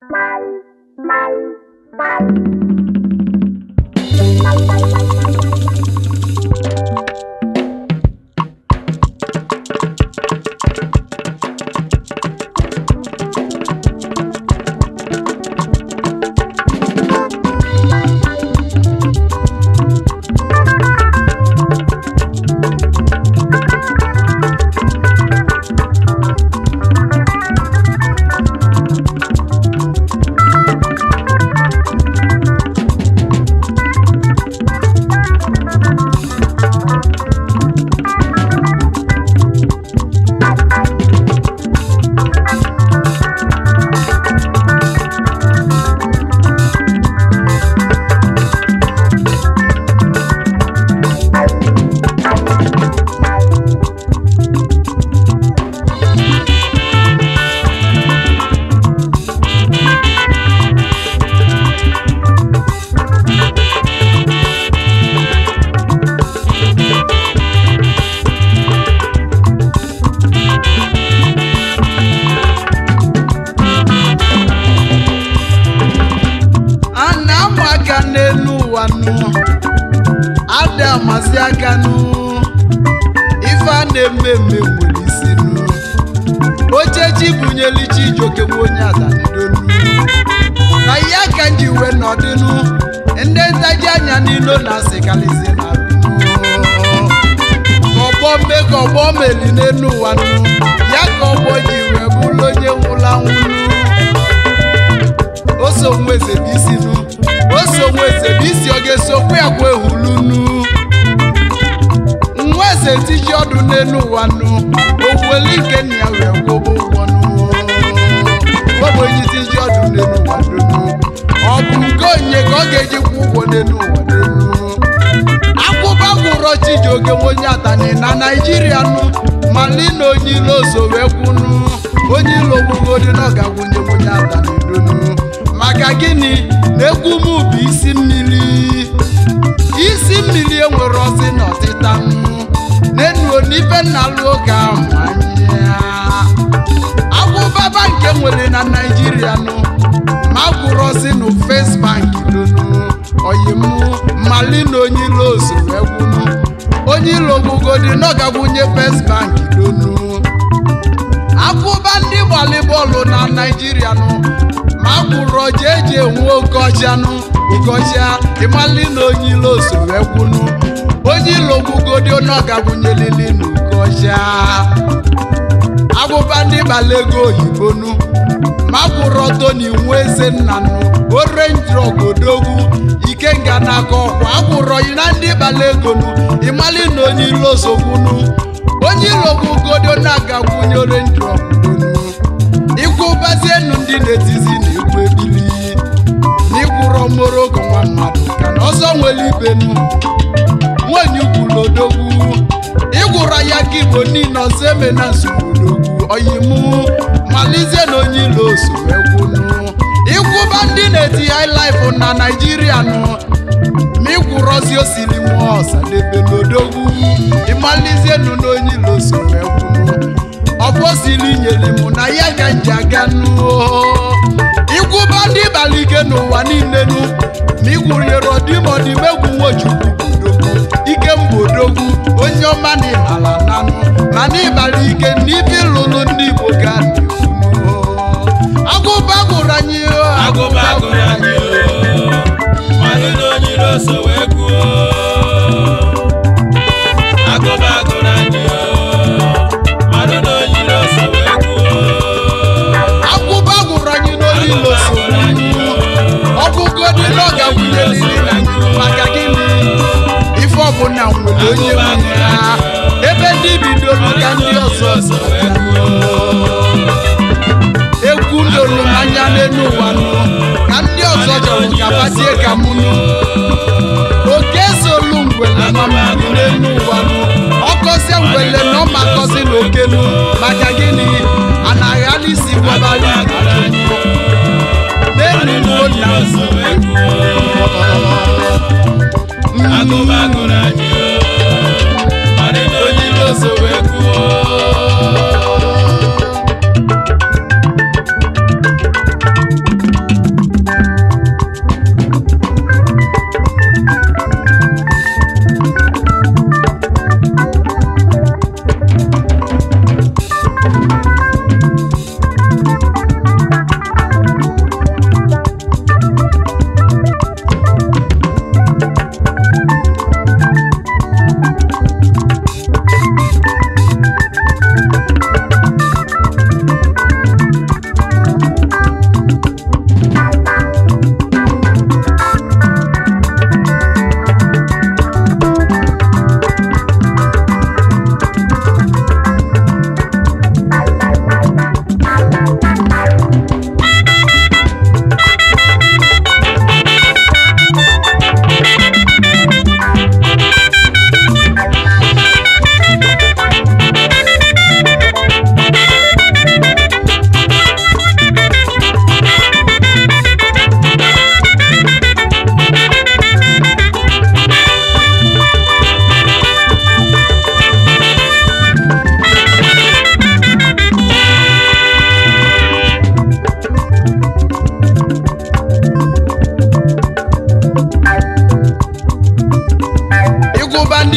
Bye. na-eme mme nwere isi nnu ochechi bunyelu Chijioke nwa onye adanidolu na ya ka nji wee nọdịnụ ndị ntaji anya n'ilo na asịkalizi na ọgbọ mme ka ọgbọ meli n'elu ụwa nnu ya ka ọgbọ ji wee bụrụ onye nwụla nwụlụ oso nwa eze bụ isi nu, oso nwa eze bụ isi ọ ga-esokwa ya kwa ehulu nnu sẹ́tí yọ̀dún nínú wa nù. Gbogbo elége ni àwẹ̀ gbogbo wọnú. Gbogbo eyín ti yọ̀dún nínú wa dùn. Ọ̀gbìn gòyìn kọ́gẹ́jì púpọ̀ nínú wa dùn. Akúbákùrọ̀ ti jòkè wọ́n yá tani na Nàìjíríà nù. Màlí ni oyin ló so wẹ́ kunu. Oyin ló gbogbo dínà ga wọ́nyé wọ́n yá tani dùn. Màkà gíní n'ekú mú bí isi mmiri. Isi mmiri enwere ọsị n'ọtịta nnu. na-enuo n'ife nna lụọ oge ahụ agwụ baba nke nwere na naijiria nụ ma gwụrọzi nụ first bank dunu oyimụ mali na onye ilo ozuru egwunu onye ilo gbugodi n'ọgagwunye first bank dunu akwụba ndị gbalị bọọlụ na naijiria nụ akwụrụ oje eji enwe okoji anụ ugoji ịmali na onye ilo so wee kwunu onye ilo gwugodi ọ ga-agwụnyelili na ugoji agwụba ndị gbala ego oyibonu makwụrụ ọtọ na iwu eze nnanụ orenji ogodogwu ikenga na-akọ ọkwa agwụrụ yi na ndị gbala ego nu ịmali na onye ilo so kwunu onye ilo gwugodi ọ na-agagwụnye orenji bazie nundi netizi ni kwebili ni kuro moro kwa mmadu kana ozo nweli benu mwenyu kulodogu igura ya kiboni na seme na sukudogu oyimu malize no nyilo suwekunu iku bandi neti high life na nigeria no mi kuro si osili mwosa lebe nodogu imalize no no nyilo suwekunu ọfọsili nyere mụ na ya ga njiaganuo ikwụba ndị balige n'ụwa niile nu ma igwuriere ọdịmọdịmegwu nwochukwu budogwu ike mbodogwu onye ọma na ịmala nanụ mana ịbara ike n'ibe ịlụlụ ndị igbo ga agụba gụrụ anyị agụba gụrụ anyị onye ha ebe ndị bidoro ka ndị ọzọ egwu lụrụ anya n'elu ụwa nụ ka ndị ọzọ jọrọ ka batie ka mụ nụ oke solu ngwele mamadu n'elu ụwa nụ ọkọzie ngwele na ọmakọzi na okelu maka gịnị anaghị alisi gwabara n'elu ụwa nụ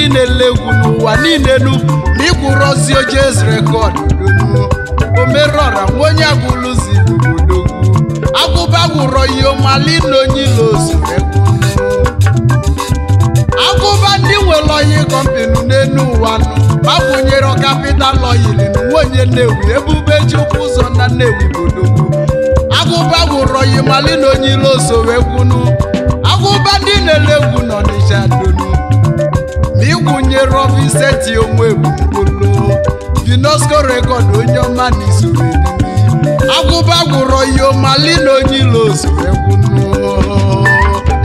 ndị na-ele n'ụwa niile elu ma ịkwụrụ ozi oje ezere god omerọra nwa onye agwụlụzi ihe ọmali na ilo ozure agụba ndị nwere oyi kọmpinu n'elu ụwa gbakwunyere kapital oyili na nwunye nnewi ebube chukwu ụzọ na nnewi bodogwu agụba gwụrụ oyi mali na onye ilo ozowegwunu agụba ndị na-ele egwu n'ọnịcha n'ịkwụnyere ọbụ ise ji onwe gburugburu UNESCO rekọd onye ọma n'izuru agwụba gwụrọ ihe ọmali na onye ilo ozuru egwunu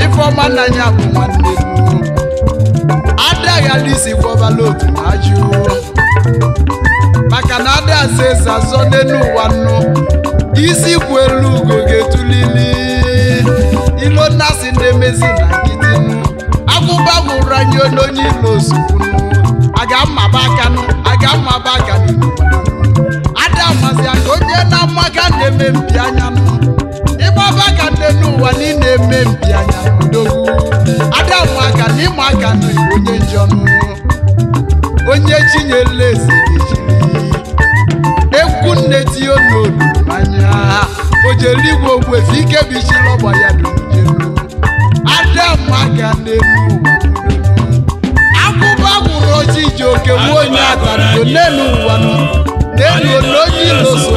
ifeọma n'anya bụ nwanne adaghadisi gwọbala otu na ajụ maka na adasi eze azọ n'elu ụwa nnu isi kwu elu ugo ga-etulili ilo nnasị na-emezi na nkịtị mụrụ anyị onye ilo ozugbo aga mmaba aka aga mmaba aka ada mazi aka onye na-ama na-eme mpi anya ịgbaba aka nne n'ụwa na eme mpi anya odogwu ada mụ aka na ịma aka na onye njọnụ onye chinyela eze egwu nne tinye n'olu anya o jere igwe ogwefe ike bụ isi lọgba ya dojelu ada mụ aka n'elu ụwa ochi ijoke wuo onye agbara n'elu ụwa n'elu onye ilo so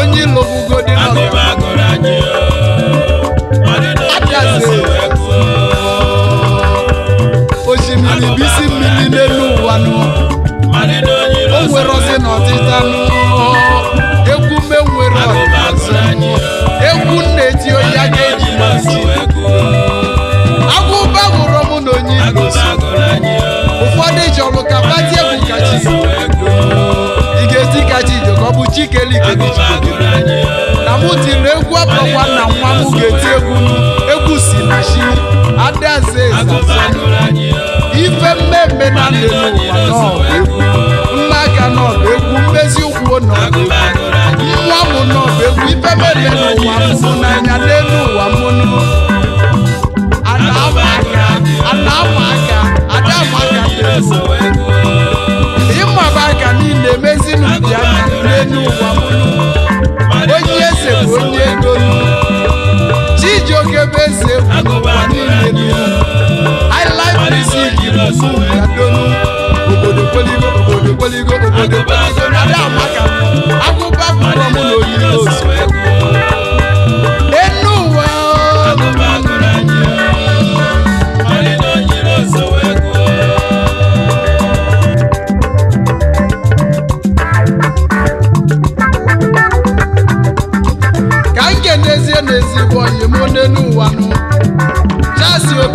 onye ilo bugodi n'ọgụ bibeli gegejigodire na mụ tiri egwu abakwa na nwa m ga-eti egwu egwu si na chi adaeze ezaza ife mmemme na ndị n'ụwa n'ọbụ egwu mma aka n'ọbụ egwu mmezi ụkwụ n'ọbụ egwu nwa m n'ọbụ egwu ife mmemme n'ụwa m n'anya n'elu nínú wàmúlò.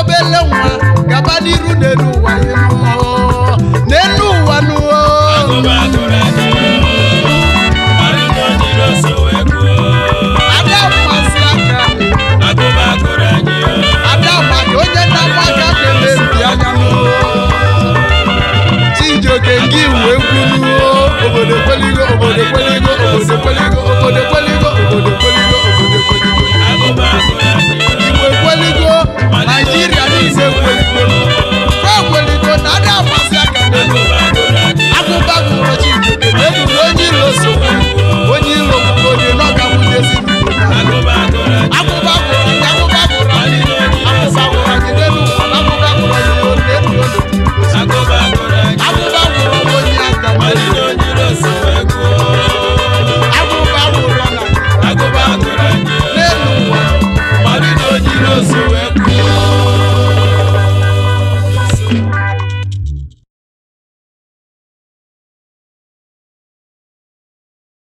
obele nwa gaba n'iru n'elu ụwa n'elu ụwa n'elu n'ụwa